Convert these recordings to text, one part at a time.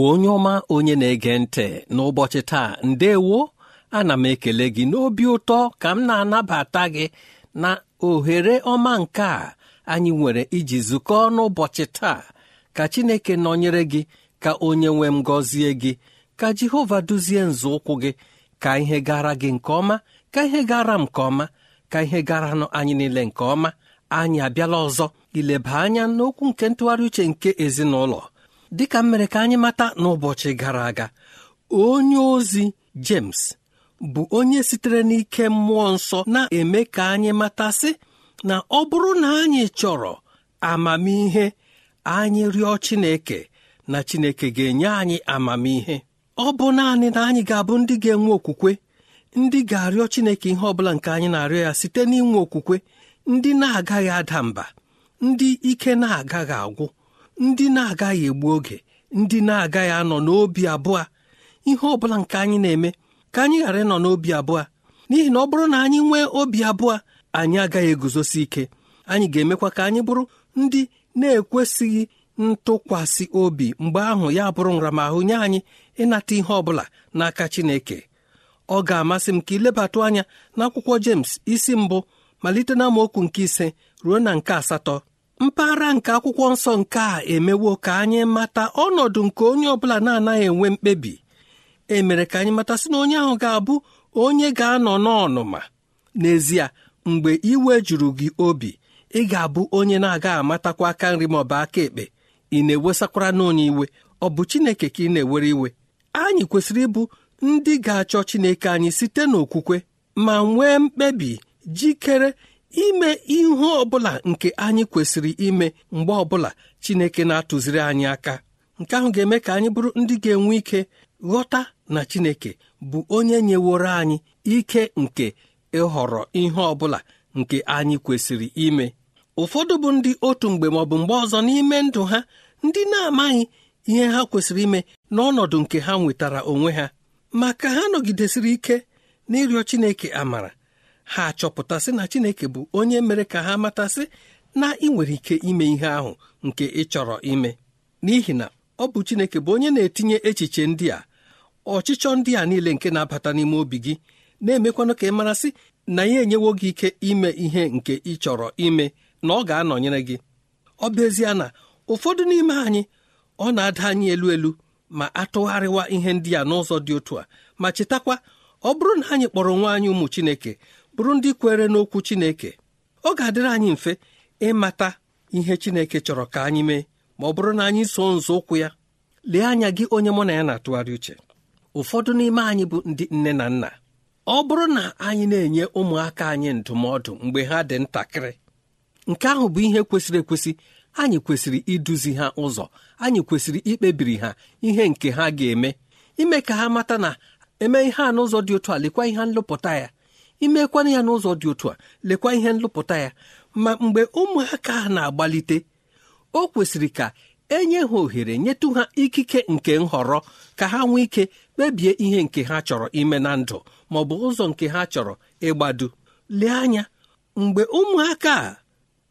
Igbo onye ọma onye na-ege ntị n'ụbọchị taa ndewo ana m ekele gị n'obi ụtọ ka m na-anabata gị na ohere ọma nke a anyị nwere iji zukọọ n'ụbọchị taa ka Chineke nọnyere gị ka onye nwe m gọzie gị ka Jehova duzie nzọụkwụ gị ka ihe gara gị nke ọma ka ihe gara m nke ọma ka ihe gara nụ anyị niile nke ọma anyị abịala ọzọ ileba anya n'okwu nke ntụgharị uche nke ezinụlọ dịka m mere ka anyị mata n'ụbọchị gara aga onye ozi James bụ onye sitere n'ike mmụọ nsọ na-eme ka anyị matasị na ọ bụrụ na anyị chọrọ amamihe anyị rịọ Chineke na Chineke ga-enye anyị amamihe ọ bụ naanị na anyị ga-abụ ndị ga-enwe okwukwe ndị ga-arịọ Chineke ihe ọ bụla nke anyị na-arịọ ya site n'inwe okwukwe ndị na-agaghị ada mba ndị ike na-agaghị agwụ ndị na-agaghị egbu oge ndị na-agaghị anọ n'obi abụọ ihe ọ bụla nke anyị na-eme ka anyị ghara ịnọ n'obi abụọ n'ihi na ọ bụrụ na anyị nwee obi abụọ anyị agaghị eguzosi ike anyị ga-emekwa ka anyị bụrụ ndị na-ekwesịghị ntụkwasị obi mgbe ahụ ya bụrụ nramahụ nye anyị ịnata ihe ọ bụla n'aka Chineke ọ ga-amasị m ka ilebatụ anya n'akwụkwọ James isi mbụ malite na okwu nke ise ruo na nke asatọ mpaghara nke akwụkwọ nsọ nke a emewo ka anyị mata ọnọdụ nke onye ọbụla na-anaghị enwe mkpebi e mere ka anyị mata sị na onye ahụ ga-abụ onye ga-anọ n'ọnụma n'ezie mgbe iwe juru gị obi ị ga-abụ onye na-aga amatakwa aka nri ma ọ bụ aka ekpe ị na-ewesakwara n'onye iwe ọ bụ Chineke ka ị na-ewere iwe anyị kwesịrị ịbụ ndị ga-achọ Chineke anyị site n'okwukwe ma nwee mkpebi jikere ime ihe ọbụla nke anyị kwesịrị ime mgbe ọbụla Chineke na-atụziri anyị aka nke ahụ ga-eme ka anyị bụrụ ndị ga-enwe ike ghọta na Chineke bụ onye nyeworo anyị ike nke ịhọrọ ihe ọbụla nke anyị kwesịrị ime ụfọdụ bụ ndị otu mgbe maọbụ mgbe ọzọ n'ime ndụ ha ndị na-amaghị ihe ha kwesịrị ime n'ọnọdụ nke ha nwetara onwe ha ma ka ha nọgidesịrị ike n'ịrịọ Chineke amara ha achọpụtasị na chineke bụ onye mere ka ha matasị na ị nwere ike ime ihe ahụ nke ị chọrọ ime n'ihi na ọ bụ chineke bụ onye na-etinye echiche ndị a ọchịchọ ndị a niile nke na-abata n'ime obi gị na-emekwanụ ka ị marasị na ya enyewo gị ike ime ihe nke ị chọrọ ime na ọ ga-anọnyere gị ọ bụ ezie na ụfọdụ n'ime anyị ọ na-ada anyị elu elu ma atụgharịwa ihe ndị a n'ụzọ dị otu a ma chetakwa ọ bụrụ na anyị kpọrọ nwa anyị ụmụ Chineke bụrụ ndị kwere n'okwu Chineke ọ ga-adịrị anyị mfe ịmata ihe Chineke chọrọ ka anyị mee ma ọ bụrụ na anyị so ụkwụ ya lee anya gị onye mụ na ya na-atụgharị uche ụfọdụ n'ime anyị bụ ndị nne na nna ọ bụrụ na anyị na-enye ụmụaka anyị ndụmọdụ mgbe ha dị ntakịrị nke ahụ bụ ihe kwesịrị ekwesị anyị kwesịrị iduzi ha ụzọ anyị kwesịrị ikpebiri ha ihe nke ha ga-eme ime ka ha mata na eme ihe a n'ụzọ dị otu a lekwa ihe nlụpụta ya imekwana ya n'ụzọ dị otu a lekwa ihe nlụpụta ya ma mgbe ụmụaka ha na-agbalite o kwesịrị ka enye ha ohere nyetụ ha ikike nke nhọrọ ka ha nwee ike kpebie ihe nke ha chọrọ ime na ndụ ma ọ bụ ụzọ nke ha chọrọ ịgbado lee anya mgbe ụmụaka a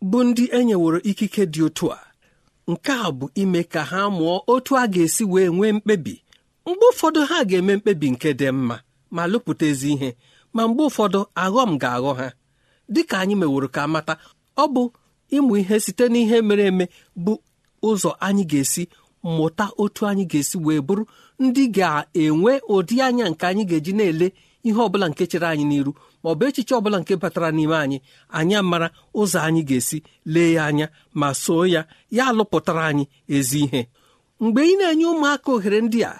bụ ndị enyeworo ikike dị otu a nke a bụ ime ka ha mụọ otu a ga-esi wee nwee mkpebi mgbe ụfọdụ ha ga-eme mkpebi nke dị mma ma lụpụta ezi ihe ma mgbe ụfọdụ aghọm ga-aghọ ha dị ka anyị meworo ka mata ọ bụ ịmụ ihe site n'ihe mere eme bụ ụzọ anyị ga-esi mụta otu anyị ga-esi wee bụrụ ndị ga-enwe ụdị anya nke anyị ga-eji na-ele ihe ọbụla nke chere anyị n'iru ma ọ bụ echiche ọbụla nke batara n'ime anyị anyị mara ụzọ anyị ga-esi lee ya anya ma soo ya ya alụpụtara anyị ezi ihe mgbe ị na-enye ụmụaka ohere ndị a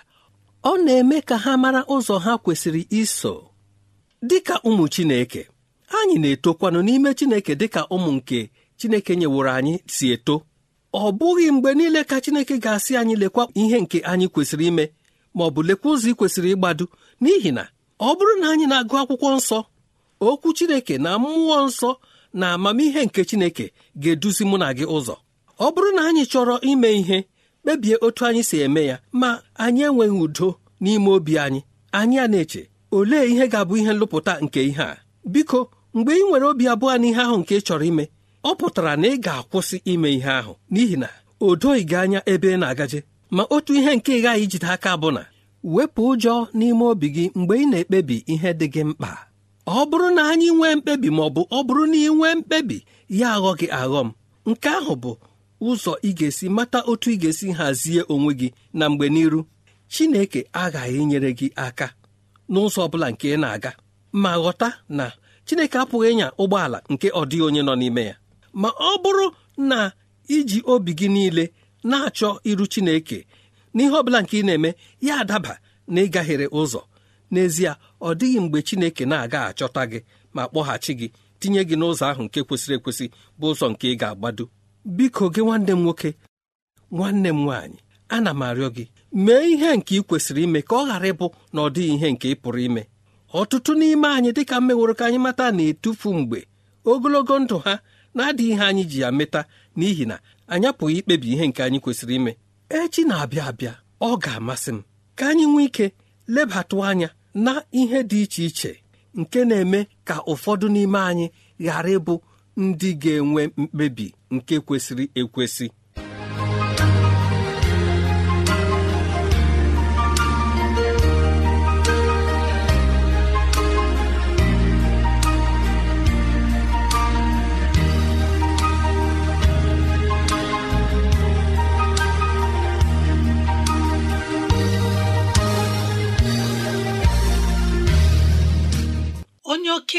ọ na-eme ka ha mara ụzọ ha kwesịrị iso dịka ụmụ Chineke anyị na-etokwanụ n'ime Chineke dịka ụmụ nke Chineke nyeworo anyị si eto ọ bụghị mgbe niile ka Chineke ga-asị anyị lekwa ihe nke anyị kwesịrị ime ma ọ bụ lekwa ụzọ ị kwesịrị ịgbado n'ihi na ọ bụrụ na anyị na-agụ akwụkwọ nsọ okwu Chineke na mmụọ nsọ na amamihe nke Chineke ga-eduzi mụ na gị ụzọ ọ bụrụ na anyị chọrọ ime ihe kpebie otu anyị si eme ya ma anyị enweghị udo n'ime obi anyị anyị a na-eche olee ihe ga-abụ ihe nlụpụta nke ihe a biko mgbe ị nwere obi abụọ n'ihe ahụ nke ị chọrọ ime ọ pụtara na ị ga-akwụsị ime ihe ahụ n'ihi na o doghị gị anya ebe ị na-agaje ma otu ihe nke ị ghaghị ijide aka bụ na wepụ ụjọ n'ime obi gị mgbe ị na-ekpebi ihe dị gị mkpa ọ bụrụ na anyị nwee mkpebi ma ọ bụ ọ bụrụ na ị nwee mkpebi ya aghọ gị aghọ m nke ahụ bụ ụzọ ị ga-esi mata otu ị ga-esi hazie onwe gị na mgbe n'iru Chineke aghaghị inyere gị aka n'ụzọ ọ bụla nke ị na-aga ma ghọta na Chineke apụghị ịnya ụgbọala nke ọ dịghị onye nọ n'ime ya ma ọ bụrụ na iji obi gị niile na-achọ iru Chineke n'ihe ọ bụla nke ị na-eme ya adaba na ịgaghere ụzọ n'ezie ọ dịghị mgbe Chineke na-aga achọta gị ma kpọghachi gị tinye gị n'ụzọ ahụ nke kwesịrị ekwesị bụ ụzọ nke ị ga-agbado biko gị nwanne m nwoke nwanne m nwaanyị ana m arịọ gị mee ihe nke ị kwesịrị ime ka ọ ghara ịbụ na ọ dịghị ihe nke ị pụrụ ime ọtụtụ n'ime anyị dịka mmeworo ka anyị mata na-etufu mgbe ogologo ndụ ha na-adịghị ihe anyị ji ya meta n'ihi na anyị apụghị ikpebi ihe nke anyị kwesịrị ime echi na-abịa abịa ọ ga-amasị m ka anyị nwee ike lebatụ anya na ihe dị iche iche nke na-eme ka ụfọdụ n'ime anyị ghara ịbụ ndị ga-enwe mkpebi nke kwesịrị ekwesị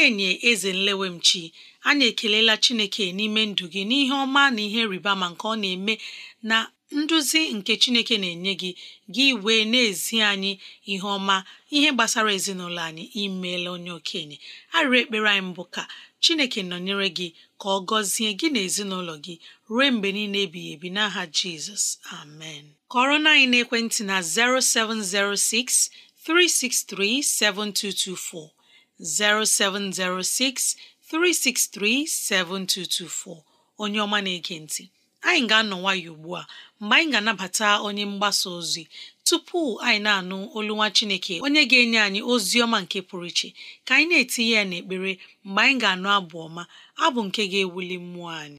okenye eze nlewemchi anyị ekelela chineke n'ime ndụ gị n'ihe ọma na ihe rịba ma nke ọ na-eme na nduzi nke chineke na-enye gị gị wee na-ezi anyị ihe ọma ihe gbasara ezinụlọ anyị imeela onye okenye arịrị ekpere anyị mbụ ka chineke nọnyere gị ka ọ gọzie gị na ezinụlọ gị ruo mgbe niile ebighị ebi n'aha jizọs amen kọrọ na anyị n'ekwentị na 0706 363 7224 0706 363 7224 onye ọma na-ege ntị anyị ga-anọ nwayọ ugbu a mgbe anyị ga-anabata onye mgbasa ozi tupu anyị na-anụ olu nwa Chineke onye ga-enye anyị ozi ọma nke pụrụ iche ka anyị na-etinye ya n'ekpere mgbe anyị ga-anụ abụ ọma abụ nke ga-ewuli mmụọ anyị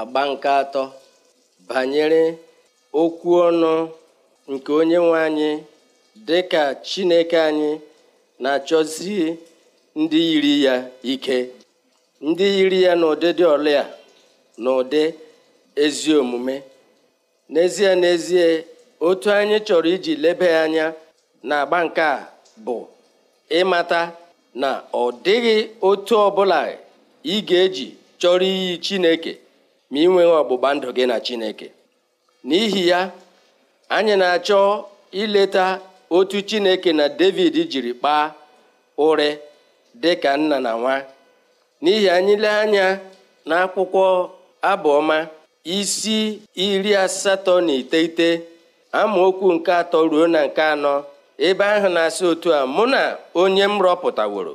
agba nke atọ banyere okwu ọnụ nke onye nwe anyị dị ka Chineke anyị na-achọzi ndị yiri ya ike ndị yiri ya n'ụdịdị dị a na ụdị ezi omume n'ezie n'ezie otu anyị chọrọ iji lebe anya na agba nke a bụ ịmata na ọ dịghị otu ọbụla ị ga-eji chọrọ iyi Chineke ma ị nweghị ọgbụgba ndụ gị na Chineke n'ihi ya anyị na-achọ ileta otu Chineke na David jiri kpaa ụrị dị ka nna na nwa n'ihi anyị lee anya n'akwụkwọ abụọma isi iri asatọ na iteghete amaokwu nke atọ ruo na nke anọ ebe ahụ na-asị otu a mụ na onye m rọpụtaworo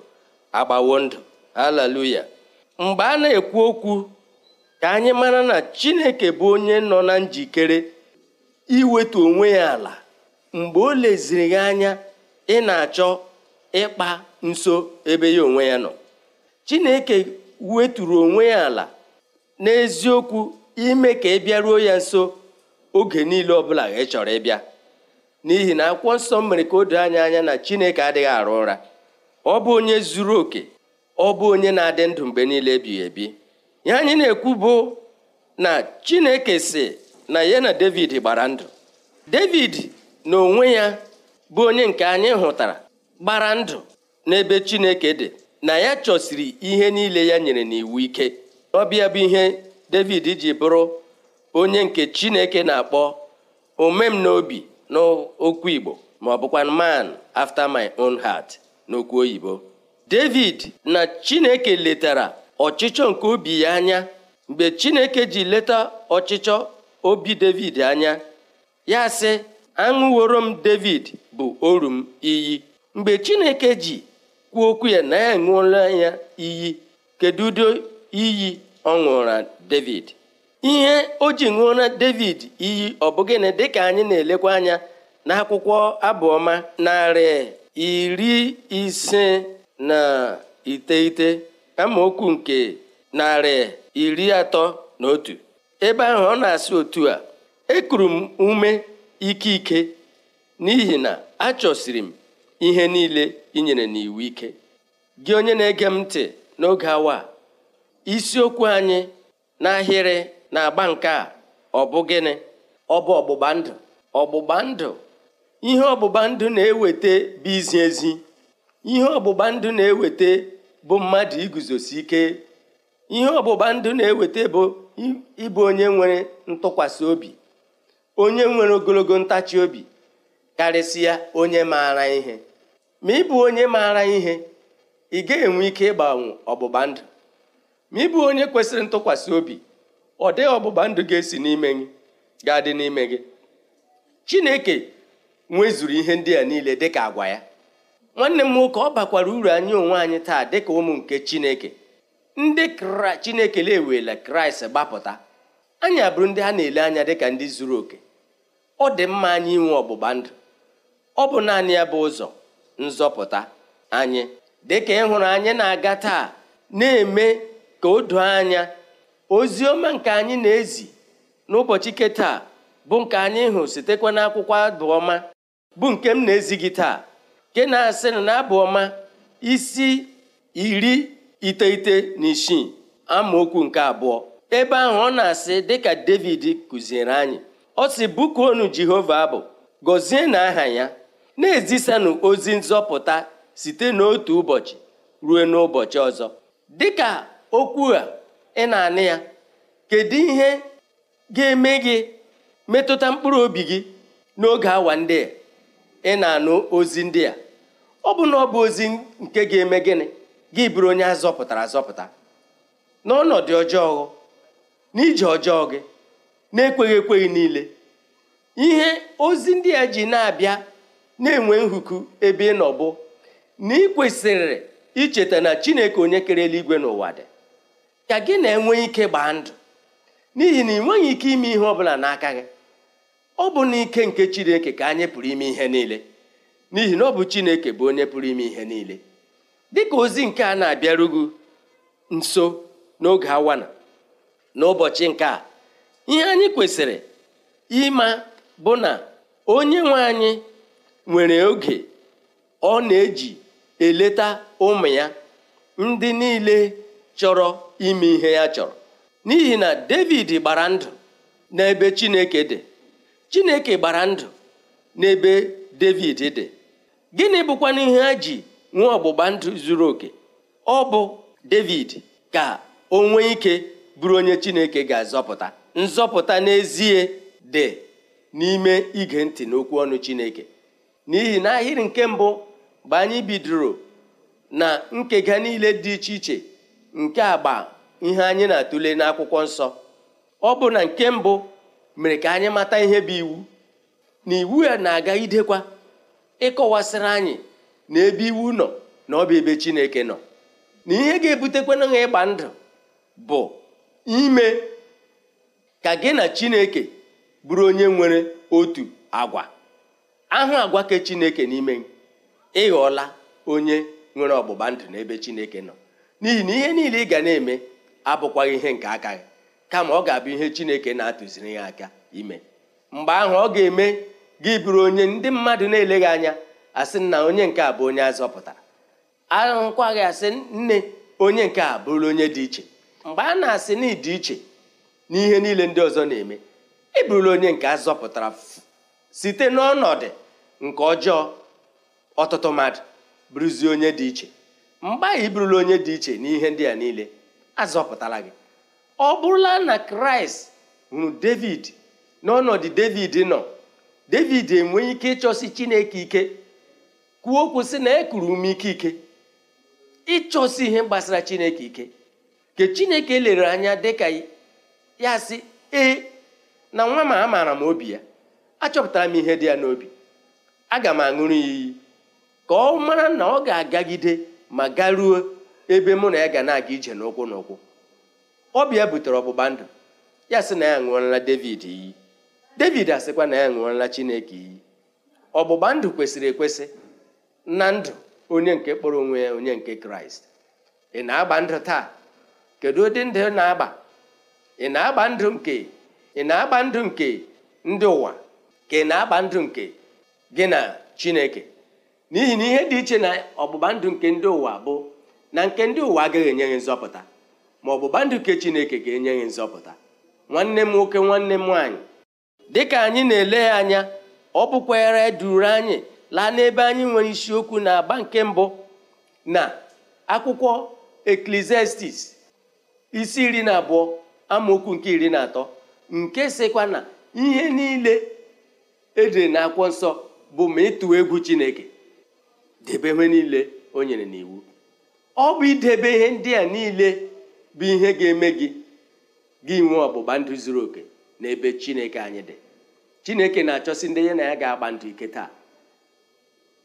agbawo ndụ haleluya mgbe a na-ekwu okwu ka anyị mara na chineke bụ onye nọ na njikere iwetu onwe ya ala mgbe o leziri gị anya ị na-achọ ịkpa nso ebe ya onwe ya nọ chineke weturu onwe ya ala n'eziokwu ime ka ị bịaruo ya nso oge niile ọbụla ị chọrọ ịbịa n'ihi na akwụkwọ nsọ mere ka o doo anya anya na chineke adịghị arụ ụra ọ bụ onye zuru oke ọ bụ onye na-adị ndụ mgbe niile ebighị ebi ya anyị na-ekwu bụ na chineke si na ya na david gbara ndụ david na onwe ya bụ onye nke anyị hụtara gbara ndụ n'ebe chineke dị na ya chọsiri ihe niile ya nyere n'iwu ike ọbịa bụ ihe david ji bụrụ onye nke chineke na-akpọ omem n'obi n'okwu igbo ma ọ bụkwa man after my own heart n'okwu oyibo david na chineke letara ọchịchọ nke obi ya anya mgbe chineke ji leta ọchịchọ obi david anya ya sị aṅụworo m david bụ oru m iyi mgbe chineke ji kwuo okwu ya na ya ṅụọla ya iyi kedu ụdị iyi ọ ṅụra david ihe o ji ṅụọra david iyi ọ bụ dị dịka anyị na-elekwa anya n'akwụkwọ abụọma narị iri ise na iteghete okwu nke narị iri atọ na otu ebe ahụ ọ na-asị otu a ekuru m ume ike ike n'ihi na achọsiri m ihe niile inyere n'iwu ike gị onye na-ege m ntị n'oge awa isiokwu anyị n'ahịrị na-agba nke a ọ bụ gịnị ọ bụ ọgbụgba ndụ ọgbụgba ndụ ihe ọgbụgba ndụ na-eweta bụ izi ezi ihe ọgbụgba na-eweta bụ mmadụ iguzosi ike ihe ọbụba ndụ na-eweta bụ ịbụ onye nwere ntụkwasị obi onye nwere ogologo ntachi obi karịsịa onye maara ihe ma ịbụ onye maara ihe ị ga-enwe ike ịgbanwe ọgbụgba ndụ ma ịbụ onye kwesịrị ntụkwasị obi ọ dịghị ọgbụgba ndụ ga-esi n'ime gị ga-adị n'ime gị Chineke nwezuru ihe ndị a niile dịka agwa ya nwanne m nwoke ọ bakwara uru anyị onwe anyị taa dịka ụmụ nke chineke ndị chineke na kraịst gbapụta anyị abụrụ ndị ha na-ele anya dịka ndị zuru oke ọ dị mma anyị inwe ọgbụgba ndụ ọ bụ naanị ya bụ ụzọ nzọpụta anyị dịka ịhụrụ anyị na-aga taa na-eme ka o doo anya ozi ọma nke anyị na-ezi n'ụbọchị nke taa bụ nke anyị hụ sitekwa n'akwụkwọ abụ ọma bụ nke m na-ezi gị taa nke na-asị na abụ ọma isi iri iteghete na isii amaokwu nke abụọ ebe ahụ ọ na-asị dịka david kụziere anyị ọ si bụkuonu jehova abụ gọzie na aha ya na-ezisanụ ozi nzọpụta site n'otu ụbọchị ruo n'ụbọchị ọzọ dịka okwu a ị na-anị ya kedu ihe ga-eme gị metụta mkpụrụ obi gị n'oge awa ndị a ị na-anụ ozi ndị a ọ bụ na ọ bụ ozi nke ga-eme gịnị gị bụrụ onye a zọpụtara azọpụta n'ọnọdụ ọjọọ n'ije ọjọọ gị na-ekweghị ekweghị niile ihe ozi ndị a ji na-abịa na-enwe nhuku ebe ị nọ na ị kwesịrị icheta na chineke onye kere eluigwe n'ụwa dị ka gị na-enwe ike gbaa ndụ n'ihi na ị nweghị ike ime ihe ọ bụla n'aka gị ọ bụ n'ike nke chineke ka anyị pụrụ ime ihe niile n'ihi na ọ bụ chineke bụ onye pụrụ ime ihe niile dịka ozi nke a na-abịarugu nso n'oge awana ụbọchị nke a ihe anyị kwesịrị ịma bụ na onye nwe anyị nwere oge ọ na-eji eleta ụmụ ya ndị niile chọrọ ime ihe ya chọrọ n'ihi na David gbara ndụ n'ebe Chineke dị chineke gbara ndụ n'ebe david dị gịnị bụkwana ihe a ji nwee ọgbụgba ndụ zuru oke ọ bụ david ka o nwee ike bụrụ onye chineke ga-azọpụta nzọpụta n'ezie dị n'ime ige ntị n'okwu ọnụ chineke n'ihi na ahịrị nke mbụ bụ anyị bidoro na nkega niile dị iche iche nke agba ihe anyị na-atụle n'akwụkwọ nsọ ọ bụ na nke mbụ mere ka anyị mata ihe bụ iwu na iwu ya na-aga idekwa ịkọwasịrị anyị na ebe iwu nọ na ọ bụ ebe Chineke nọ na ihe ga-ebutekwana ha ịgba ndụ bụ ime ka gị na Chineke bụrụ onye nwere otu agwa ahụ agwa ke Chineke n'ime ịghọla onye nwere ọgbụgba ndụ n'ebe Chineke nọ n'ihi na ihe niile ị ga na-eme abụkwaghị ihe nke aka gị kama ọ ga-abụ ihe chineke na-atụziri ya aka ime mgbe ahụ ọ ga-eme gị bụrụ onye ndị mmadụ na-eleghị anya asị na onye nke a bụ onye azọpụtara gị asị nne onye nke a bụrụ onye dị iche mgbe a na-asị na ịdị iche n'ihe niile ndị ọzọ na-eme ị bụrụla onye nke azọpụtara site n'ọnọdụ nke ọjọọ ọtụtụ mmadụ bụrụzie onye dị iche mgbe ahụ ị bụrụla onye dị iche n'ihe ndị a niile azọpụtara gị ọ bụrụla na kraịst hụrụ david n'ọnọdụ david nọ david enweghị ike ịchọsi chineke ike kwuo kwụsị sị na ekuru ume ike ike ịchọsi ihe gbasara chineke ike ke chineke lere anya dịka ya sị ee na nwa m amaara m obi ya achọpụtara m ihe dị ya n'obi aga m aṅụrụ iyi ka ọ mara na ọ ga-agagide ma garuo ebe mụ na ya ga na-aga ije n'ụkwụ n'ụkwụ ọbịa butere ọgbụgba ndụ ya sị na ya ṅụọla David iyi David asịkwa na ya ṅụọla Chineke iyi ọgbụgba ndụ kwesịrị ekwesị na ndụ onye nke kpọrọ onwe ya onye nke Kraịst ị na-agba ndụ taa kedu ụdị ndị na-agba ị na-agba ndụ nke ị na-agba ndụ nke ndị ụwa ka ị na-agba ndụ nke gị na Chineke n'ihi na ihe dị iche na ọgbụgba ndụ nke ndị ụwa bụ na nke ndị ụwa agaghị enye gị nzọpụta ma ọ bụ gbanduke chineke ga-enye gị nzọpụta nwanne m nwoke nwanne m nwaanyị dịka anyị na-ele ya anya ọ bụkwara duru anyị laa n'ebe anyị nwere isiokwu na agba nke mbụ na akwụkwọ eklesiastis isi iri na abụọ amaokwu nke iri na atọ nke sịkwa na ihe niile edere na akwụkwọ nsọ bụ ma ịtụwa egwu chineke debe ihe niile o nyere n'iwu ọ bụ idebe ihe ndị a niile bụ ihe ga-eme gị gị nwee ọgbụgba ndụ zuru oke n'ebe chineke anyị dị chineke na-achọsi ndị ya na ya ga-agba ndụ ike taa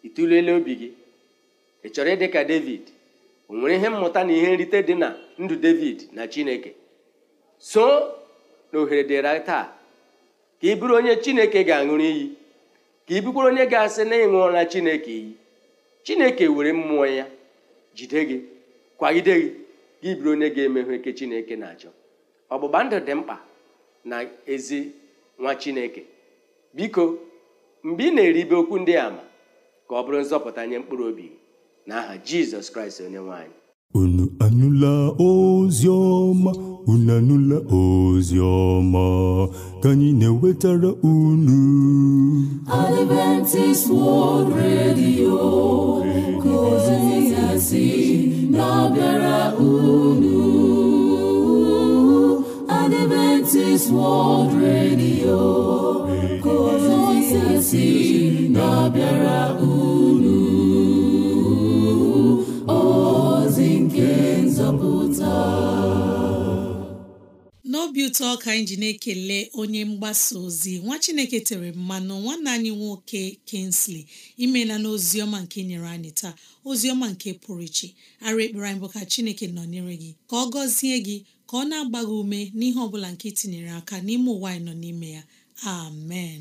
ị obi gị ị chọrọ ịdị ka david o nwere ihe mmụta na ihe nrite dị na ndụ david na chineke so na ohere dịra taa ka ị bụrụ onye chineke ga-aṅụrụ iyi ka ị bụkwara onye ga-asị na ịṅụọla chineke iyi chineke were mmụọ ya jide gị kwagide gị gị bụrụ onye ga-emehụ eke chineke na-achọ ọgbụgba ndụ dị mkpa na ezi nwa chineke biko mgbe ị na-eribe okwu ndị ama ka ọ bụrụ nzọpụta nye mkpụrụ obi n'aha jizọs kraịst onye nwanyị unu anụla ozi unu anụla ozi ka anyị na-ewetara unu Adventist World Radio ka ozi ya si na-abịara unu Adventist World Radio kozisi na-abịara unu ozi nke nzọpụta n'obi ụtọ ka anyị ji na-ekele onye mgbasa ozi nwa chineke tere mmanụ nwanne anyị nwoke kensley imela na ọma nke nyere anyị taa ozi ọma nke pụrụ iche ara ekpere anyị bụ ka chineke nọnyere gị ka ọ gọzie gị ka ọ na-agba gị ume n'ihe ọ bụla nke itinyere aka n'ime ụwa anyị nọ n'ime ya amen